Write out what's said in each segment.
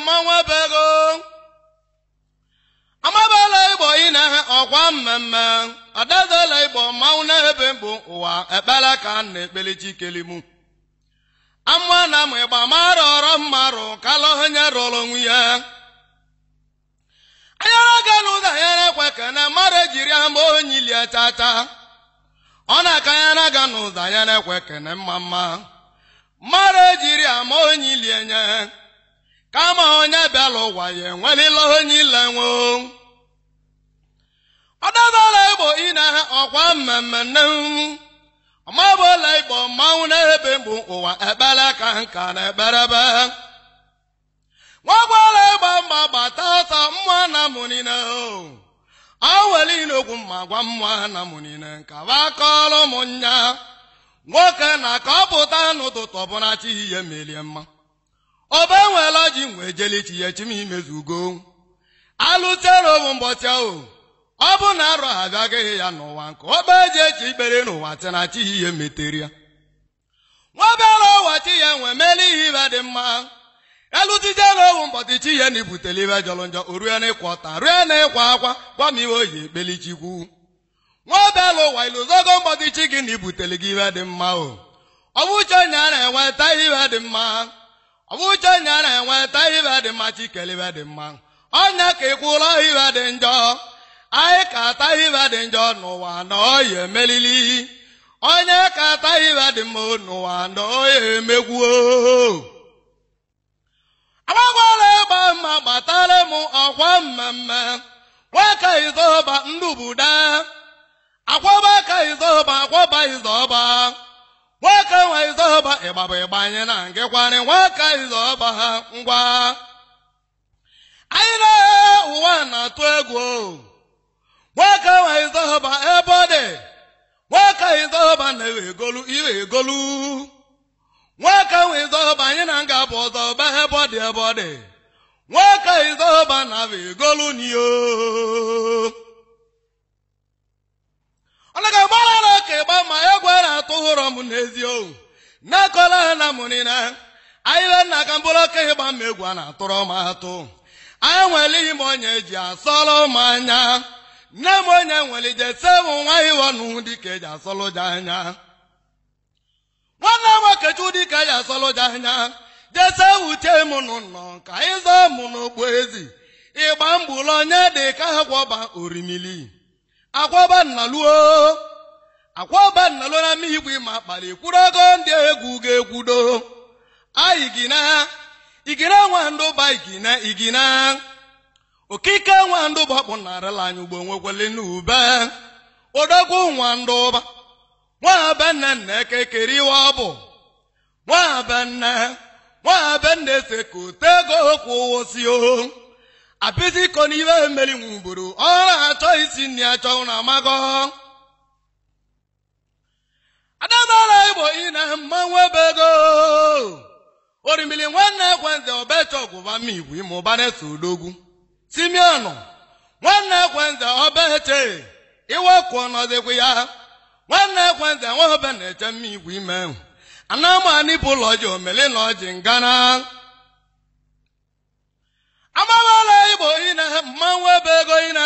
mmọnwụ bego amabala igbo ị na-ehe ọkwa mmemme ọdazala igbo mmanwụ na-ebe mbụ ụwa ekpela ka na ekpele chikelimu ama na m ịgba mara ọrọ mmarụ rụ ha nyere ọrụ ya anyara ga n'ụzọ na ekwe ka na mmadụ ejiri ama onye ilie tata ọ na-aka ya na aga n'ụzọ na ekwe kene mma mma mmadụ ejiri ama onye ilie nye kama onye bịala ụwa ya enwerela onye ile nwe ọdabala igbo ine ọkwa mmemme nne ọmabụla igbo mmanwụ na-ebe mgbu ụwa ekpere ka nka na ekperebe nwagbala ịgba mgba gbata ọsọ mmụọ na mụnine o were inokwu ma gwa mmụọ na mụnine nkaba kọrọ ụmụnya nwoke na ka ọ pụta n'ụtụtụ ọbụla chi ihe merie mma ọba enweela ji nwee jeli chi ya chim imezugo alụterowu mbọchị ahụ ọ bụ na arọ ha agaghị ya n'ụwa nke ọba eji echi ikpere n'ụwa na chihi ihe metere ya nwabara ụwa chi ya nwee meela ihe ibe dị mma elutiterowu mbọchị chi ya na ibutele ibe jọrọ njọ o rue na ịkwa ọta rue na ịkwa akwa gwa m iwe oyi Nwa nwabara ụwa iluzogo mbọchị chi gị na ibutele gị ibe dị mma o ọ bụcha onye a na-enweta ihe ibe dị mma ọ bụ na enweta ibe dị mma chikere ibe dị mma onye ka ịkwụrụ ibe dị njọ anyị ka ata ibe dị njọ n'ụwa na oya emelili onye ka ata ibe dị mma n'ụwa na oya emegwuo agbagwara ịgba mma gbatara m ọkwa mmemme nwaka izoba ndụbuda akwaba ka izoba akwaba izoba nwaka nwaizọba ịgba bụ ịgba anyị na nke kwarị nwaka izọba ha ngwa anyị na ụwa na-atụ egwu nwaka nwaizọba ebe ọ dị nwaka izọba na-ewe egolu iwe egolu nwaka nwaizọba anyị na nga bụ ọzọba ebe ọ dị ebe ọ dị nwaka izọba na egolu n'iyo Eziokwu: ohu na-akọla na mụrịna anyị le nna ka mkpụrụ oke ihe gba mma egwu a na-atụrụ m atụ anyị nwere ihe m onye eji asọlụ m anya nne m onye nwere ije sewu nwa iwọnụ dịka eji asọlụ ji anya nwanne m okechu dịka eji asọlụ ji anya jese wuchie m n'ụnọ ka anyị zọọ m n'okpu ezi ịgba mgbulu onye dị ka ha gwọba orimili agwọba nnaluo akwaba nnalona igwe ma kpali kwuru ogo ndị egwu ga-egwudo aigina igina nwandụba igina igina okike nwandụba kpụnarala anyị ugbo nwekwele n'ube odogwu nwandụba nwabanna nna ekekeriwa ọ bụ nwabanna nwabanna ese ka otego kwụwosi o apịzikọ n'ibe meri nwuburu ọ na-achọ isi nri achọ na amago adamala igbo ina mmanwụ nwebego orimbili nwanne ekwenze obecha ọgwụba migwe ime ụbana eso odogwu simeonu nwanne ekwenze obeche iwekwụ ọnọdịkwu ya nwanne ekwenze nwaobe na-eche mma igwe ime anamanipụ ụlọ ọjị omeli na ọjị ngana amawala igbo ina mmanwụ ebe ego ina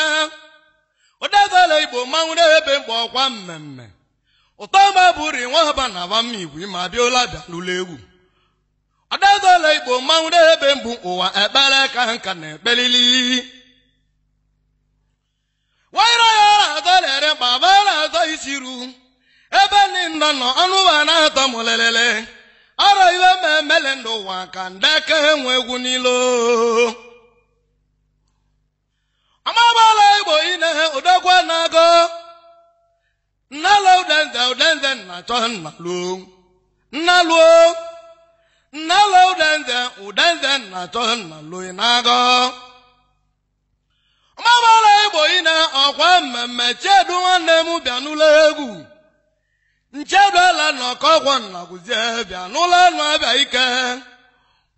ụdezala igbo mmanwụ na ebe mgbe ọkwa mmemme Ụtọ ụtọma bụri nwa haba na aba mma igwe ma bịala n'ụlọ egwu adadala igbo mmanwụ ebe mbụ ụwa ekpere ka nka na ekpelili waịraya adalere baba na-atọ isi ru ebe nna nọ ọnụ ụwa na-atọ lelele ọrọ iwe ma emele n'ụwa ka ndeke enwe egwu n'ilo ụlọ igbo ina-ehe odogwu na-agụ nalo den den den den na cho na lu na lu lo den den u den den na cho na lu na igbo ị na ọkwa mmemme chedu nwanne m bịa n'ụlọ egwu ncheduela na ọkọgwọ nnaguzie bịa n'ụlọ nụ abịa ike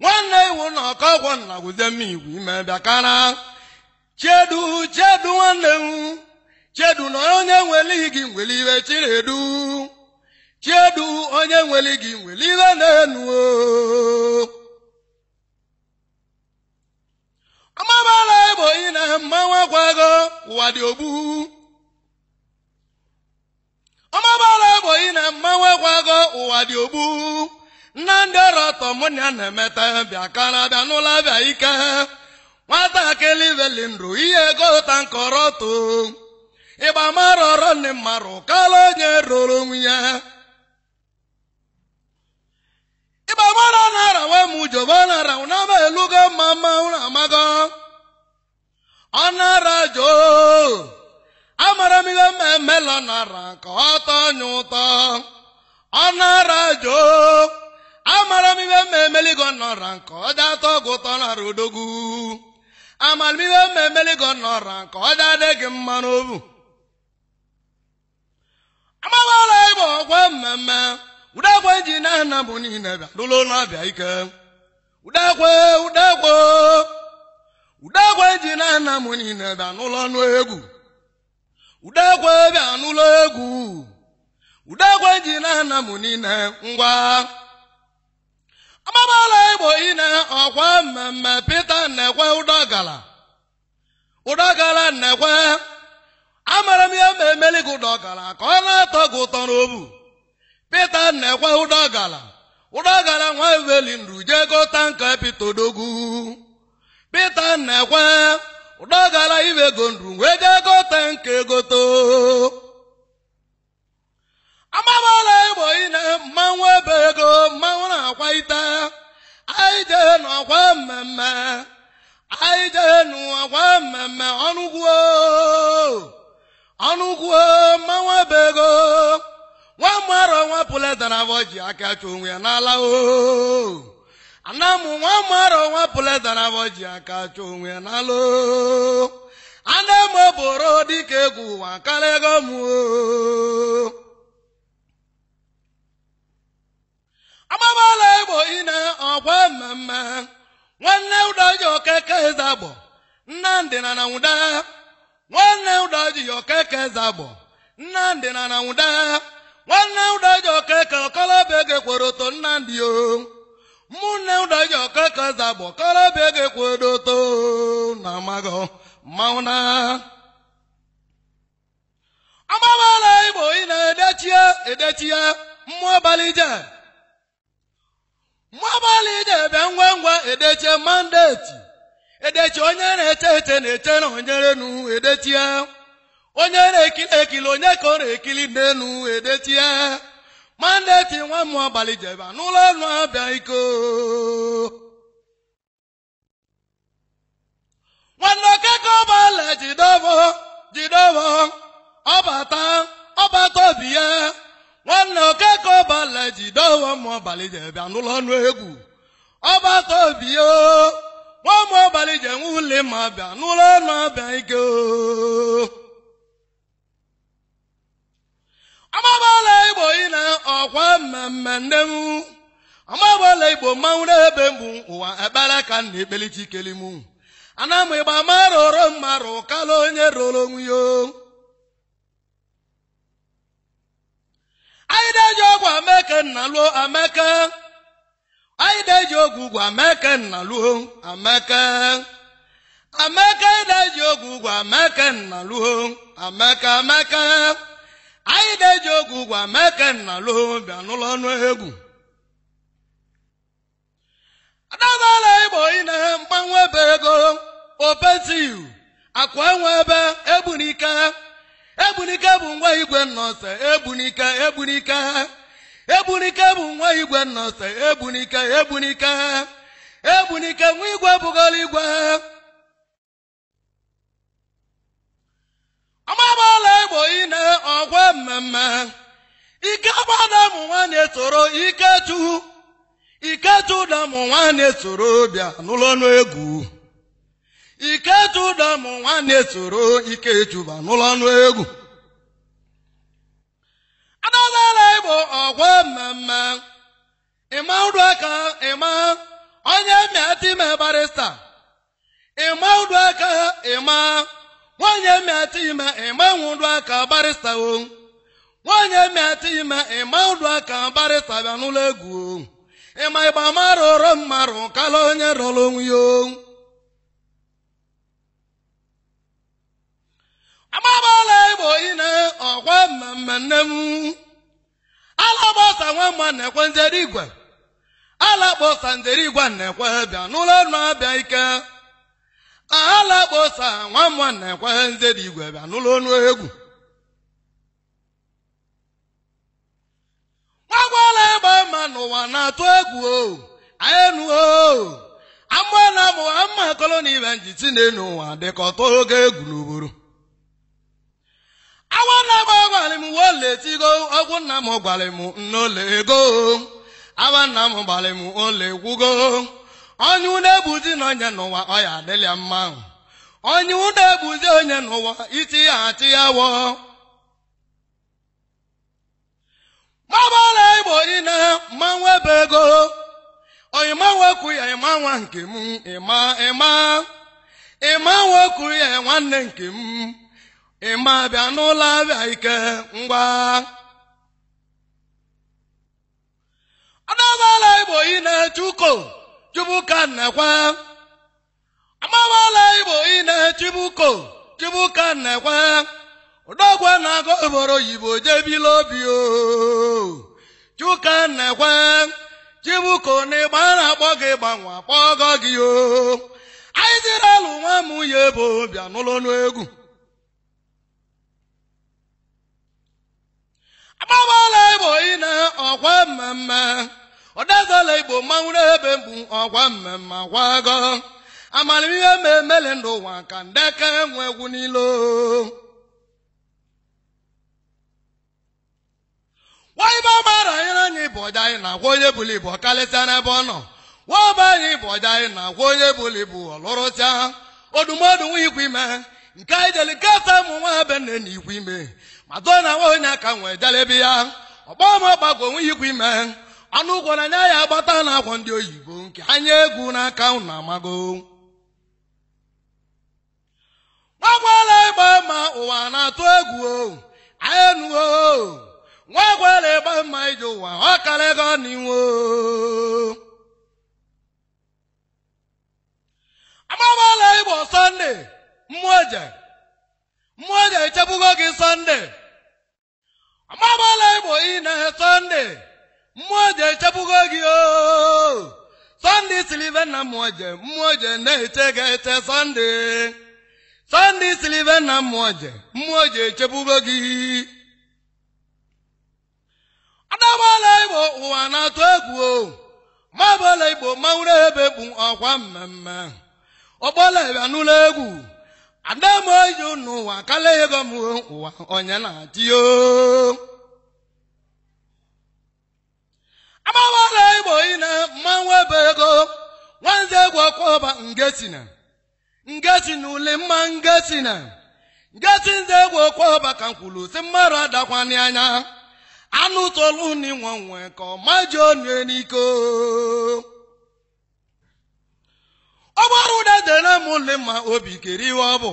nwanne iwu na ọkọgwọ nnaguzie m igwu ime bịa kana chedu chedu nwanne m chiedu na onye nwelighị gị nweli iwe chinedu chiedu onye nweli gị nweli iwe na-enu ọmabala igbo ị na mmanwụ akwago ụwa dị ogbu ọmabala igbo ị na mmanwụ akwago ụwa dị ogbu nna ndị ọrụ ọtọ mụ na na-emeta bịa kara bịa n'ụlọ bịa ike nwatakịrị veli ndụ ihe ego ụta nkọrọ too ịgba marọrọ ndị mmarụ kala onye roro onwe ya ịgba mara na arawe m ujoba na araw na ama elugo mma mma ụlọ amago ọ nara joo amara m ihe mma emela nara ka ọ tọọ nye ụtọ ọ nara joo amara m ihe mma emeligo nọra nke ọ dị atọ gị ụtọ nara odogwu amara m ihe mma emeligo nọra nke ọ dị adịghị mma n'obu amabala ịbụ ọgwa mmemme udekwe eji na-ana bụ niile bịa dụlụ n'ọbịa ike udekwe udekwe udekwe eji na-ana mụ niile bịa n'ụlọ ọnụ egwu udekwe bịa n'ụlọ egwu udekwe ji na-ana mụ niile ngwa amabala igbo ine ọkwa mmemme pete nnekwe ụdọgala ụdọgala nnekwe amara m ya ma emeli gị ụdọ ka ọ na-atọ gị ụtọ n'obu pita na-ekwe ụdọ ọgala nwa eweli nru jee gota nka pita odogwu pita na-ekwe ụdọ ọgala iwe ego nru wee jee gota nka egoto amamala igbo ine mmanwụ ebe ego mmanwụ na-akwa ite anyị jee n'ọkwa mmemme anyị jee n'ọkwa mmemme ọnụgwuo ọnụkwuo manwa ma nwa mara nwa pụleta na ji aka achụ onwe ya n'ala o ana m nwa mara nwa pụleta na ji aka achụ onwe ya n'ala o ana m bụrụ dịka egwu ụwa karịa ego m agbabala igbo ine ọkwa mmemme nwanne ụdọ ji okeke eze agbọ nnamdị na na nwanne ụdọji okeke zagbo nnamdị na na nwụda nwanne ụda ụdọji okeke okolobịa gekwere oto nnamdị o mụnne ụdọji okeke zagbo okolobịa gekwere oto na magọ mmanwụ na ọgbawala igbo ị na-edechie edechie mmụọ abalị je mmụọ abalị je bịa ngwa ngwa edechie mandeti edechi onye na-eche eche ete na eche na onyerenu edetie onye na-ekili ekili onye ka ọ na-ekili n'enu edetie mandeti nwa mmụọ abalị jeba n'ụlọ ọnụ abịa iko nwanne okeke ọbala jidobo jidobo ọbata ọbata obi ya nwanne okeke ọbala jidobo mmụọ abalị jeba n'ụlọ ọnụ egwu ọbata obi ya nwa ụmụ abalị ji enwe ule ma abịa n'ụlọ ọnụ abịa ike amabala igbo ị na ọkwa mmemme nne m amabala igbo mmanwụ n'ebe mbụ ụwa ekpere ka nna ekpelichi kelim ana m ịgba mara onye roro onwe ya anyị na-eji ọgwụ ameke nna lụọ ameke anyị na-eji ogwe ugwu ameke nna luho ameke ameke anyị na-eji ogwe ugwu ameke nna luho ameke ameke anyị na-eji ogwe ugwu ameke nna luho bịa n'ụlọ ọnụ egwu adabala igbo ihe mgbanwe ebe ego opetiu akwa enwe ebe egbunike egbunike bụ ngwa igwe nnọse egbunike egbunike Egbunike bụ nwa igwe nnọsa Egbunike Egbunike Egbunike nwa igwe bụgoro igwe ọgbabala Igbo ine ọgwa mmemme ike gbada mụ nwaanyị soro iketu iketu da mụ nwaanyị soro bịa n'ụlọ egwu iketu da mụ nwaanyị soro iketu ba n'ụlọ ọnụ egwu adọzala bụ ọgwa mmemme ịma ụdụ aka ịma onye mịatime barista ịma ụdụ aka ịma nwanyị mịatime ịma ụdụ aka barista o nwanyị mịatime ịma ụdụ aka barista bịa n'ụlọ egwu ịma ịgba mara ụrọ mmarụ kala onye rọrọ onwe ya agbabala igbo ine ọkwa mmemme nne m alagbasa nwamma na-ekwe njere igwe alakpọsa njere igwe na-ekwe bịa n'ụlọ ọnụ abịa ike alakposa nwamma na-ekwe njere igwe bịa n'ụlọ ọnụ egwu gbagwala ịgba mma n'ụwa na-atụ egwu o anyị nụo amụọ na amụwa mma koloni ibe njiti na-enu ụwa dịka ọtọ oge egwu n'oboro awa nna m gwara m uwe oletigo ọgwụ nna m gwara m nnaole ego awa nna m gbara m ole gwugo onye unu ebuzi na onye n'ụwa ọ ya adịla mma onye unu ebuzi onye n'ụwa iti ya ati ya wọ mabala igbo niile mmanwụ ebe ego oyima nwekwu ya ịma nwa nke m ịma ịma ịma nwekwu ya nwanne nke m ịma bịa n'ụlọ abịa ike ngwa ọdọbala igbo ị na-eche uko chubuka nnekwe amabala igbo ị na-echibu uko chubuka nnekwe ụdọgwe na-agụ obodo oyibo jebila obi chuka nnekwe chibuko na ịgba na-akpọ gị gbanwe akpọgo gị o anyị sịrị alụ nwa m nwunye bụ bịa n'ụlọ n'egwu akpọbala igbo ị ọgwa ọkwa mmemme ọdazala igbo mmanwụ ebe mbụ ọgwa mmemme akwago amamihe mmemmele ndụ ụwa ka ndeke nwe egwu n'ilo nwaibe ọgbara anyere anyị bụ ọja anyị na-agwa onye bụla ibu ọkalịsịa n'ebe ọ nọ nwaba anyị bụ ọja anyị na-agwa onye bụla ibu ọlụrụsịa odumodu nwa ikwu ime nke anyị jeli nketa ụmụ nwa be nne na ikwu ime madonna nwaohi na aka nwee dara ebe ya ọkpọ ma ọgbagwo onweghị ikwu ime anụ ụgwọ na anya ya agbata na akwa ndị oyibo nke anya egwu n'aka unu amago nwagwala ịgba mma ụwa na-atụ egwu o anyị enuo nwagwala ịgba mma iji ụwa ọ karịa ego n'iwu amagbala ịgba sọnde mmụọ eje mmụọ ga-echebugo gị sọnde amabala ịbụ ị na sọnde mmụọ ga-echebugo gị o sọnde silive na mmụọ mmụọje na-eche ga-eche sọnde sọnde silive na mmụọ mmụọje echebugo gị adabala ịbụ ụwa na-atụ egwu o mabala igbo mawụrụ ebe bụ ọkwa mmemme ọgbọla ịbịa n'ụlọ egwu adamoyi n'ụwa kala ego m ụwa onye na-atịyo agbawala igbo ine mmanwụ ebe ego nwanze egwu ọkwọba ngetina ngetina ule mma ngetina ngeti nze egwu ọba ka nkwulu si mmadụ adakwani anya anụ tolu n'inwe nwe ka ọ maji onye n'iko ọ bụrụ ụda dere m ụlị ma obi kere ihe ọ bụ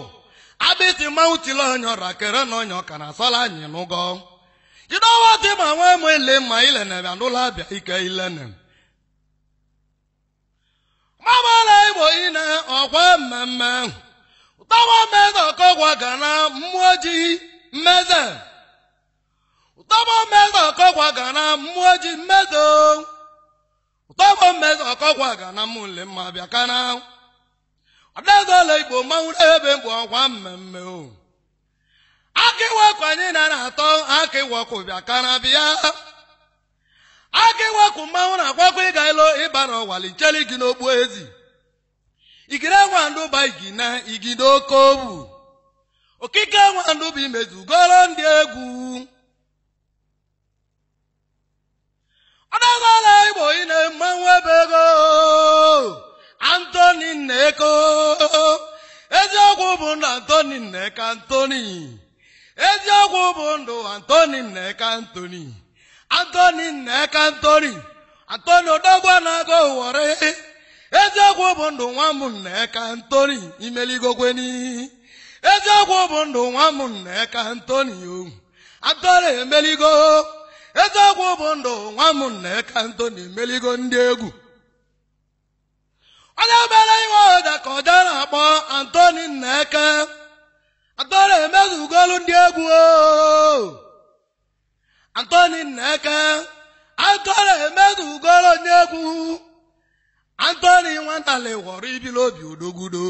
abịtị mmanwụ tili onye ọra kere na onye ọka na asọla anyị n'ụgọ jidowa dị ma nwa m ele ma ilenebịa n'ụlọ abịa ike ilene mabala igbo ine ọkwa mmemme ụtọwa mmeze ọkọgwa ga na mmụọ ji mmeze ụtọwa mmeze ọkọgwa ga na mmụọ ji mmezo ụtọwa mmeze ọkọgwa ga na mụle mma bịa kana abịagoola igbo mmanwụ ebe mbụ ọkwa mmemme o akịwekụ anyị na atọ akịwekụ bịa ka na bịa akịwekụ mmanwụ na-akwakwa ịga ilo ịba n'ọwali cheli gị n'okpu ezi igide nwandụba igina igide oke obu okike nwandụba imezugoro ndị egwu adagoola igbo ị na mmanwụ ebe ego antoni nneko eziokwu bụ ndụ antoni nneka antoni eziokwu bụ ndụ antoni nneka antoni ndụ nwa nneka antoni ndụ nwa nneka antoni antoni emeligo eziokwu bụ ndụ nwa nneka antoni emeligo ndị egwu onye mere iwe ọda ka ọ dara akpọ antoni nneke antoni emezugolu ndị egwu antoni nneke antoni emezugolu ndị egwu antoni nwantali ghọrọ ibili obi odogwudo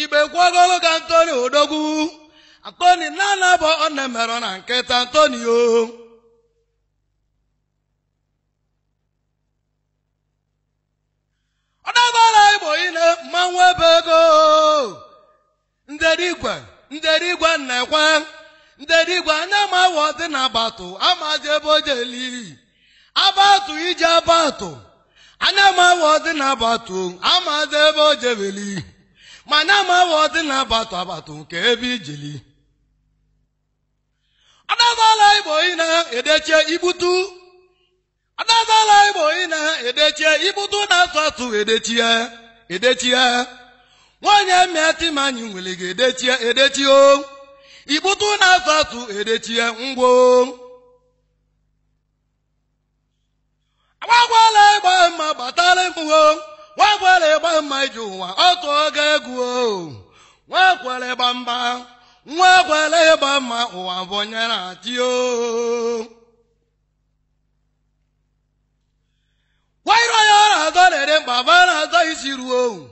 igbe kwagolo ka antoni odogwu antoni na-anabọ ọ na-emerọ na nkịta antoni o ebara igbo ile mmanwụ ebe ego nderigwe anya ma dị na abatụ amazi ebe o jeli abatụ ije abatụ anya ma dị na abatụ amazi ebe o jebeli na abatụ abatụ nke ebe ijeli igbutu adadala igbo ị na-edechie ibutu na-asụ asụ edechie edechie nwaanyị mịa timanyị nwere ga-edechie edechio ibutu na-asụ asụ edechie ngwo agbagwala ịgba mma gbatara mgbuo nwakwara ịgba mma iji ụwa ọtụ oge egwu nwakwara ịgba nwa nwakwara ịgba mma ụwa bụnyere atio eziru owu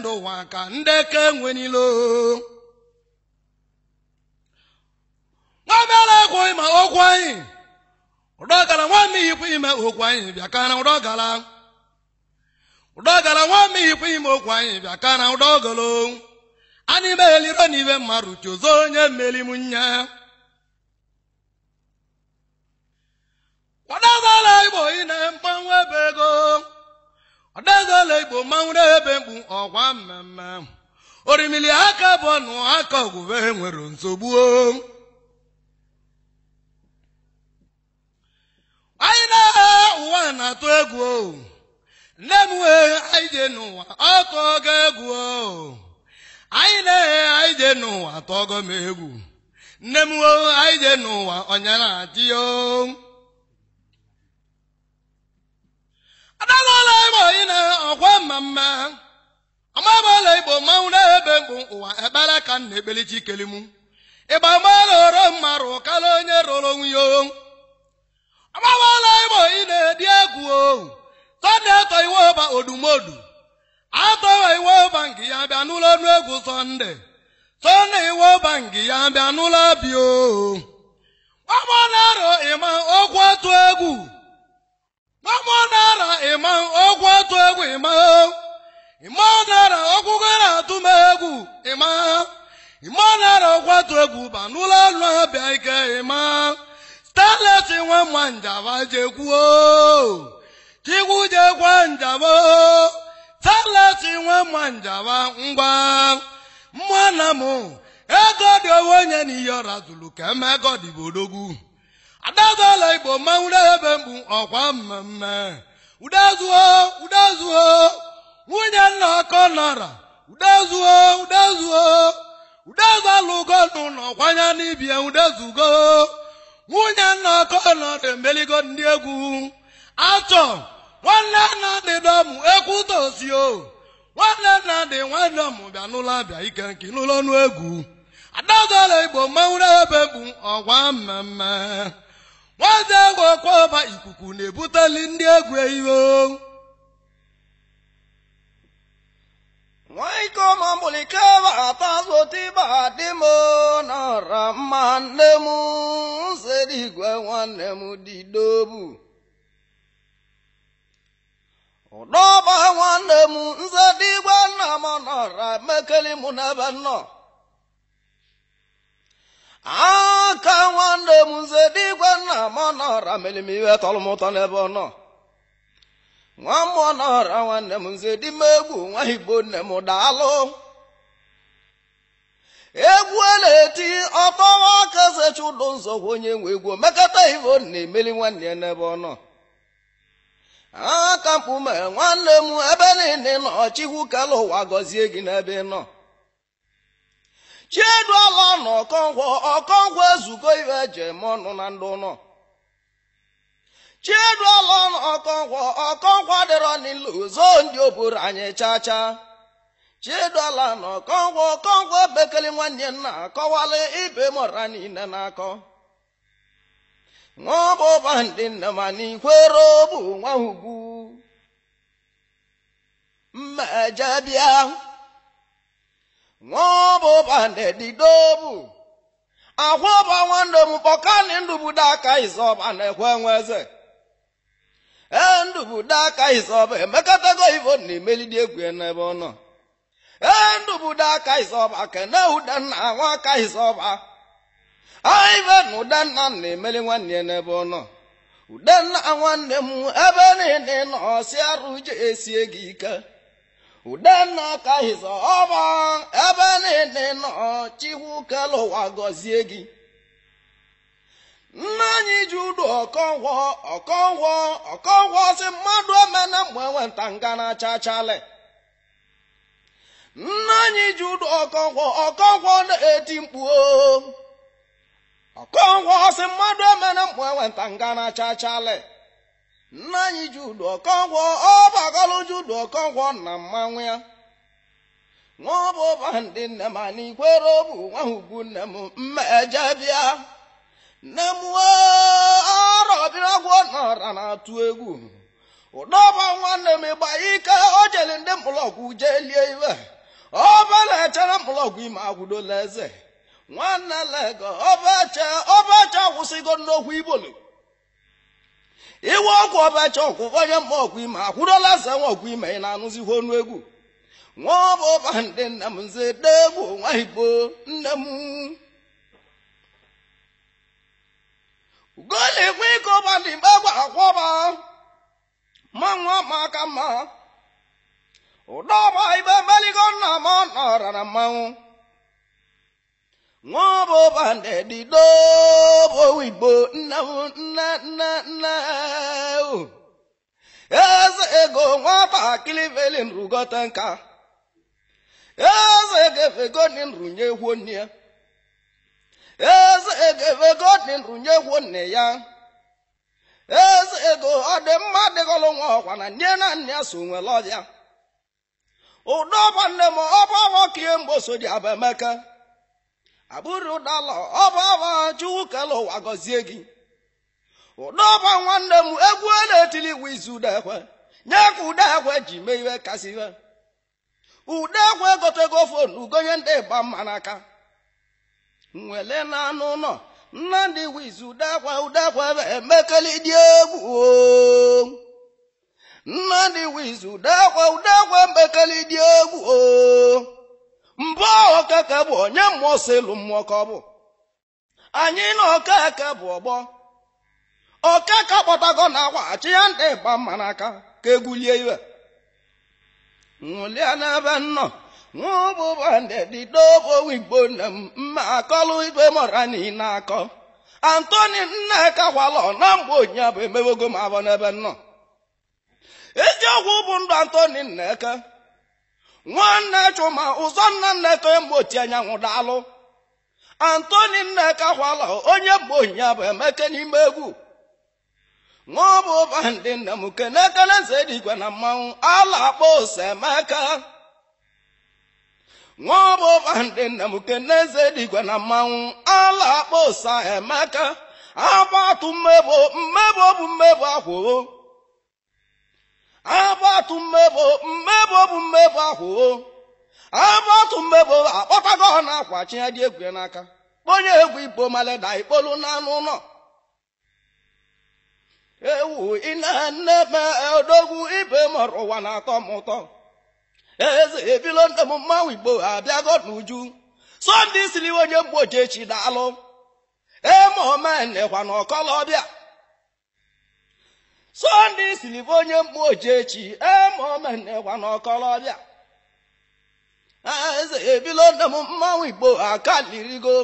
ndụ ụwa ka ndeke nwenilo nwamere egwu ịma okwu anyị ime okwu anyị bịa ka na ụdọgara ime okwu anyị bịa ka na ụdọgolo anyị meghelido n'ibe mmadụ chụzo onye kwadobala igbo ị na mgbanwe ego ọdagala igbo mmanwụrụ ebe mkpu ọgwa mmemme orimili aka bụ ọnụ aka ọgwụbe nwere nsogbu anyị na eghe ụwa na-atụ egwu nne m wee anyị jee n'ụwa ọtụ ọgọ egwu anyị na-eghe anyị jee n'ụwa tọgọ egwu nne m wee anyị jee n'ụwa ọnyana atịyo igbo ọkwa mmamma amabala igbo mmanwụ na-ebe bụ ụwa ekpere ka m na chi chikelim ịgba mala oro mmarụ kala onye rụrụ onwe ya amabala igbo ị na-edi egwu o sọnde atọ iwe ọba odumodu atọwa iwe ọba nke ya bịa n'ụlọ ọnụ egwu sọnde sọnde iwe ọba nke ya bịa n'ụlọ abịa o ọgbọ na-arụ ịma okwu otu egwu na-atụ egwu ịma ịma nara ọgwụgwọ na-atụ m egwu ịma ịma nara ọkwatụ egwu ba n'ụlọ ọrụ abịa bịa ike ịma stalet nwe mma njaba jekwuo chikwu jekwa njaba stalet nwe mma njaba ngwa mma na m ego dị owe onye n'iyi ọra zụrụ ka eme ego dịbodogwu igbo mmanwụ ebe mkpu ọkwa mmemme udezuo udezuo nwunye nna ọkọ nara udezuo udezuo udezu alụgo n'ụlọ kwanya n'ibie udezugo nwunye nna ọkọ nara emeligo ndị egwu achọ nwanne nna dị dọmụ ekwutosio nwanne nna dị nwanne ọmụ bịa n'ụlọ bịa ike nke n'ụlọ ọnụ egwu adazala igbo mmanwụrụ ebe bụ ọgwa mmemme nwaazị ahụ ọkwaọba ikuku na-ebuteli ndị egwu iwe nwaikoma mgbulikeba atazụtiba dị m nọrọ mma nne m igwe nwanne m didobu ụdọba nwanne m nsedigwe nna m nọrọ mekeli mụ n'ebe nnọọ aka nwanne m nze digwe nna m ọnọra mere m tọrọ m ụtọ n'ebe ọ nọ nwa m ọnọra nwanne m nze di m egwu nwa igbo nne m daalụ egwu a na-eti ọtọwa aka zechi ụlọ nzọgwa onye nwe egwu omekata ivo na-emeli nwanne ya n'ebe ọ nọ aka mkpume nwanne m ebe niile nọ chikwu kala ụwa gọzie gị n'ebe ị nọ chieduola na ọkọngwọ ọkọngwọ ezugo ibe eji eme ọnụ na ndị ụnọ Chiduola na ọkọngwọ ọkọngwọ dịrọ n'ilu zoo ndị oburu anyị chacha chieduola na ọkọngwọ ọkọngwọ bekele nwanne nna akọwala ibe mọra niile na-akọ nwa ọbụba ndị nne ma n'ikwere bụ nwa ugwu mmejebịa ahoba nedidobu ahoba nwanne m kpọkani ndubudo aka izoba na-ekwe nwe ee e, aka izoba emekọtago ivo na imelidi egwu n'ebe ọ nọ ee aka izoba kene udenna nwa aka aive na na-emeli nwanne n'ebe ọ nọ nwanne m ebe niile gị ike udenna ka hiza ọma ebe niile nọ chikwu kele ụwa gọzie gị nna anyị ji udu ọkọnwọ ọkọnwọ ọkọnwọ si mmadụ emena mgbe enweta nga na-acha achale nna anyị ji udu ọkọnwọ ọkọnwọ na-eti mkpu ọkọnwọ si mmadụ emena mgbe enweta nga na-acha achale nna anyị Jude Okonkwo ji Jude Okonkwo na mmanwụ ya n'ọbụ ụba ndị nne m ana ikwere ọbụ nwa ugwu nne m mmeje bịa nne m arọbịrọgwọ n'ọra na-atụ egwu ụdọba nwanne m ịgba ike o jeli ndị jee lie iwe ọba na-echere mkpụrọgwụ ime agwụdola eze nwanne lega ọbache ọbache akwụsịgo nnokwu igbolo iwe ọkụ ọbacha ọkwụwa onye mma ọkwa ime akwụrụla asa nwa ọkwa ime ị na-anụzighị ọnụ egwu nwa ọba ọba ndị nna m nze dee nwa igbo nne m ugolikwe ike ọba ndị mgbe gwa akwọba ma nwa ma aka mma ụdọ ọba ibe meligo nna m ọ nọra na mmanwụ nwọbụ bandị dobo igbo nna nna nna nna eze ego nwatakịrị velin rugota nka eze gefegodin runye gwonne eze gefegodin runye gwonne ya eze ego ọ dị mma dịgọlụ nwa ọkwa na nne na nne ya so nwere ọbịa ụdọ ọba nne m ọba ọbọ kie mgbe so dị abamaka abụrụ dala ọba chukwu kele ụwa gọzie gị ụdọba nwanne m egwu na-etili wiz udekwe nye ka udekwe ji mee iwe kasị ihe udekwe gotego fonu ugonye ndị ịgba mma n'aka nwele na anụ ụlọ nnamdị wiz udekwe udekwe emekeli dị egwu nnamdị wiz udekwe udekwe mbekeli dị egwu oo mbụ ọkaka bụ onye mmụọ si mmụọ ka ọ bụ anyị na okeke bụ ọgbọ okeke kpọtago na achị ya ndị ịba mma n'aka ka egwulie iwe ṅụlia n'ebe nnọ nwụbụbadedidobowigbo nne m mma akọlụ ibe mọra akọ antoni nneka gwala na mgbe onyinye bụ emewego m abọ n'ebe nnọ eziokwu bụ ndụ antoni nneke. nwanne chuma ụzọ nna nneto e mgbochi anyanwụ daalụ antoni nneka kwala onye bụ ya bụ emeke n'ime egwu nwa bụ ụba ndị nna m kene nze na mmanwụ ala akpọ emeka ọ ụba ndị nna m nze na mmanwụ ala akpọ ose emeka agba atụ mmebo mmebo bụ mmebo akwụo agbatu mmebo mmebo bụ mmebo ahụ agbatu mmebo akpọtago ọ na-akwa egwu ya n'aka kponye egwu igbo maleda ikpolu n'anụ ụlọ ewu ina nne me odogwu ibe mọrọ ụwa na-atọ m ụtọ eze ebilo ndị m mmanwụ igbo abịago n'uju sọnde isiri onye mgboji echi daalụ eme omenekwa na ọkọlọbịa Sunday siri bụ onye mkpu ojechi emaomenekwa n'ọkọlọbịa eze ebilo nne m mmanwụ igbo aka lirigo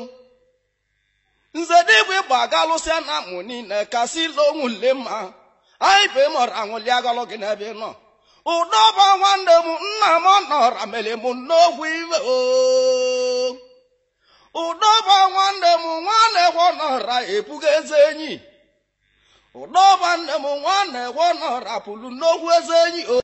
nze dịbụ ịgba aga lụsịa na mụ niile kasị ile onwu nle mma anyị bụ ịmụrụ anwụli agọlụ gị n'ebe ị nọ ụdọba nwanne m nna m nọra mere m n'okwu iwe o ụdọba nwanne m nwa kwọ nọra ebugo eze enyi ụdọba nne m nwanne wonọrapụrụ n'okwu eze enyi